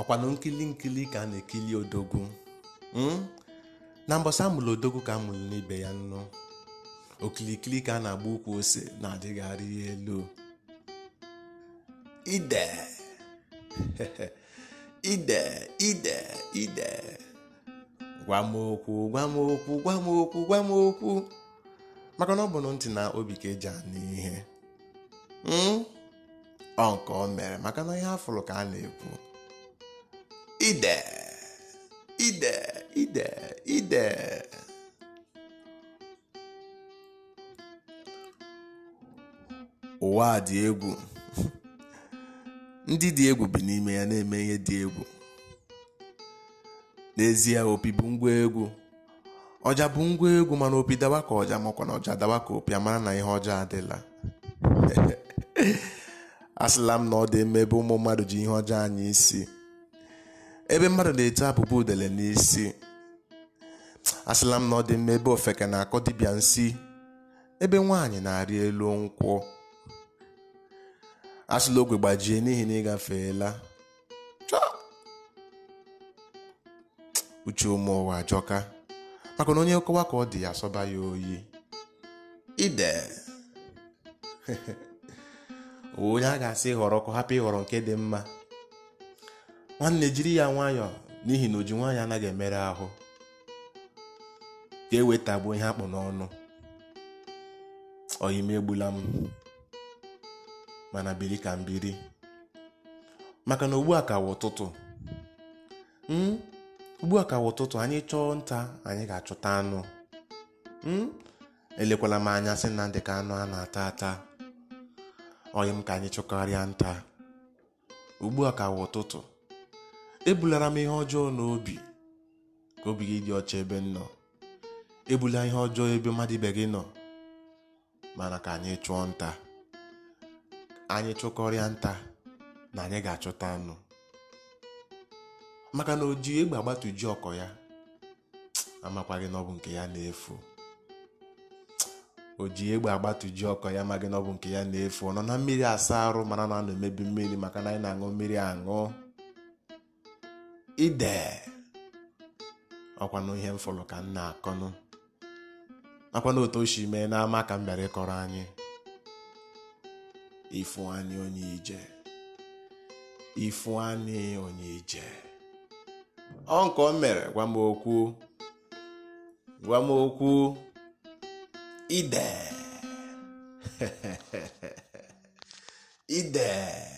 ọkwanụ nkili nkili ka a na-ekili odogwu hmm? na mbọsị amụrụ odogwu ka amụrụ n'ibe ya nnu okilikili ka a na-agba ukwu ose na-adịgharị ihe elu ide ide ide ide gwa m okwu gwa maka na ọ bụ ntị na obi ka eji anụ ihe hmm? ọ nke ọ mere maka na ihe afụrụ ka a na-ekwu ide ide ide ide ụwa dị egwu ndị dị egwu bi n'ime ya na-eme ihe dị egwu n'ezie opi bụ ngwa egwu ọja bụ ngwa egwu mana opi dawa ka ọja makwa na ọja dawa ka opi amara na ihe ọjọọ adịla asịla m na ọ dị mma ebe ụmụ mmadụ ji ihe ọjọọ anyị isi ebe mmadụ na-ete abụba udele n'isi asịla m na ọ dị mma ebe ofeke na-akọ dibịa nsị. ebe nwaanyị na-arị elu nkwụ asịla ogwe gbajie n'ihi na ịgafeela uche ụmụ ụwa jọka maka na onye nkọwa ka ọ dị ya asọba ya oyi ide onye a ga-asị ịhọrọ ka hapụ ịhọrọ nke dị mma nwanne jiri ya nwayọọ n'ihi na oji nwaanyị anaghị emere ahụ ka e wetagbuo ihe akpụ n'ọnụ ọyime egbula m mana biri ka m biri maka na ugbu a ka ụtụtụ hmm? ugbu a ka ụtụtụ anyị chọọ nta anyị ga-achọta anụ hmm? elekwala m anya sị na dịka anụ a na-ata ata oyim ka anyị chọkarịa nta ugbu a ka ụtụtụ ebulara m ihe ọjọọ n'obi ka obi gị dị ọcha ebe m nọ ebula ihe ọjọọ ebe mmadụ ibe gị nọ mana ka anyị chụọ nta anyị chụkọrịa nta na anyị ga-achọta anụ maka na oji egbe agbatuji ọkọ ya amakwa gị n'ọbụ nke ya na-efu oji egbe agbatuji ọkọ ya amaghị na nke ya na-efu ọ nọ na mmiri asa arụ mana na a na-emebi mmiri maka na anyị na-aṅụ mmiri aṅụ ide ọkwanụ ihe mfụlụ ka m na-akọnụ nakwana otu o si mee n'ama ka m bịara ịkọrọ anyị Ifeanyi Onyeije Ifeanyi Onyeije ọ nke o mere gwa m okwu gwa m okwu ide ide